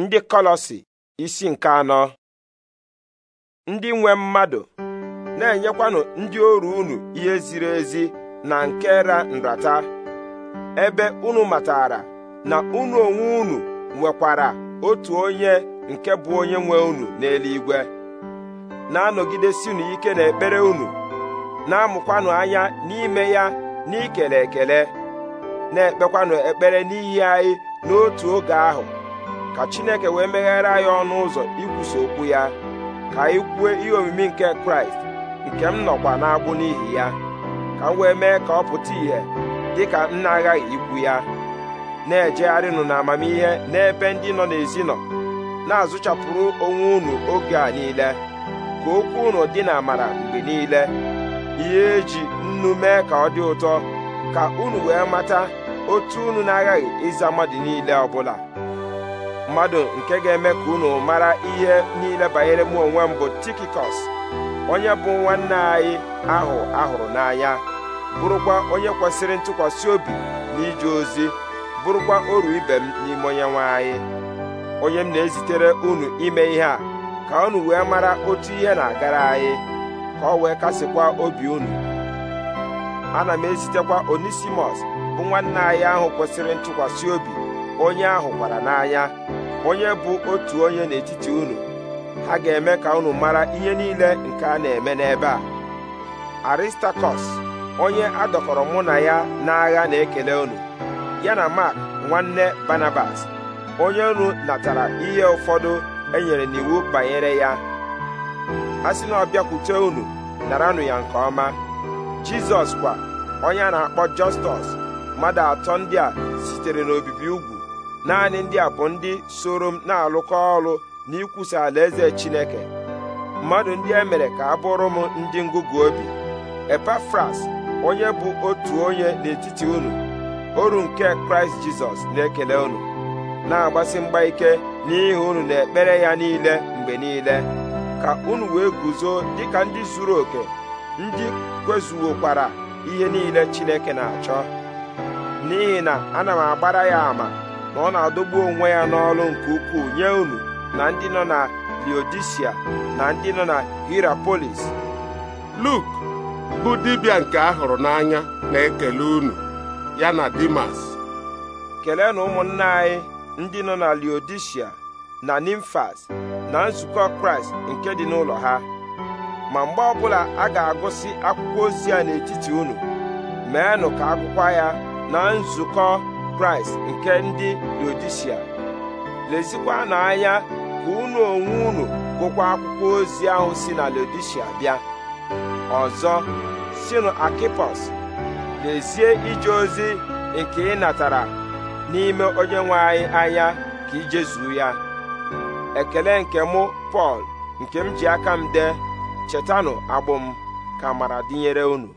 ndị kọlọsi isi nke anọ ndị nwe mmadụ na-enyekwanụ ndị oru unu ihe ziri ezi na nke ra nrata ebe unu matara na unu onwe unu nwekwara otu onye nke bụ onye nwe unu n'eluigwe na-anọgidesinu ike n'ekpere unu na-amụkwanụ anya n'ime ya n'ikele ekele na-ekpekwanụ ekpere n'ihi anyị n'otu oge ahụ ka chineke wee meghere anyị ọnụ ụzọ ikwusa okwu ya ka anyị kwue ihe omimi nke kraịst nke m nọkwa n'agbụ n'ihi ya ka m wee mee ka ọ pụta ìhè dị ka m na-aghaghị ikwu ya na-ejegharịnụ na amamihe n'ebe ndị nọ n'ezi nọ na-azụchapụrụ onwe unu oge a niile ka okwu unu dị na amara mgbe niile ihe eji nnu mee ka ọ dị ụtọ ka unu wee mata otu unu na-aghaghị ịza mmadụ niile ọbụla mmadụ nke ga-eme ka unu mara ihe niile banyere mụ onwe m bụ tikikos onye bụ nwanne anyị ahụ ahụrụ n'anya bụrụkwa onye kwesịrị ntụkwasị obi n'ije ozi bụrụkwa oru ibe m n'ime onye nwanyị anyị onye m na-ezitere unu ime ihe a ka unu wee mara otu ihe na-agara anyị ka ọ wee kasịkwa obi unu ana m ezitekwa onisimos bụ nwanne anyị ahụ kwesịrị ntụkwasị obi onye ahụ gwara n'anya onye bụ otu onye n'etiti unu ha ga-eme ka unu mara ihe niile nke a na-eme n'ebe a aristakọs onye adọkọrọ mụ na ya n'agha na-ekele unu ya na mak nwanne banabas onye unu natara ihe ụfọdụ enyere n'iwu banyere ya a sị na ọ bịakwute unu naranụ ya nke ọma jizọs kwa onye a na-akpọ jọstọs mmadụ atọ ndị a sitere n'obibi ugwu naanị ndị a bụ ndị soro m na-alụkọ ọrụ na alaeze Chineke mmadụ ndị e mere ka a bụrụ m ndị ngụgụ obi Epafras onye bụ otu onye n'etiti unu oru nke Kraịst Jizọs na-ekele unu na-agbasi mgba ike n'ihi unu na ekpere ya niile mgbe niile ka unu wee guzo dịka ndị zuru oke ndị kwezuwokwara ihe niile Chineke na-achọ n'ihi na ana m agbara ya ama na ọ na-adọgbu onwe ya n'ọrụ nke ukwuu nye unu na ndị nọ na Leodisia na ndị nọ na Hirapolis Luk bụ dibịa nke a hụrụ n'anya na-ekele unu ya na Dimas kelee na ụmụnna anyị ndị nọ na Leodisia na Nimfas na nzukọ Kraịst nke dị n'ụlọ ha ma mgbe ọbụla a ga-agụsị akwụkwọ ozi a n'etiti unu meenụ ka akwụkwọ ya na nzukọ kraịst nke ndị lezikwa lezikwanụ anya ka unu onwe unu gụkwa akwụkwọ ozi ahụ si na lodisia bịa ọzọ sinu akipos lezie ije ozi nke ị natara n'ime onye nwe anyị anya ka ijezuo ya ekele nke mụ pọl nke m ji aka m dee chetanụ agbụ m ka amara dịnyere unu